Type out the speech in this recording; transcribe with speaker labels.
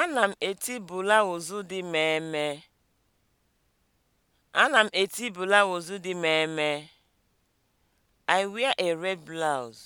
Speaker 1: Ana m eti blauzu dị mmee. Ana m eti blauzu dị mmee. I wear a red blouse.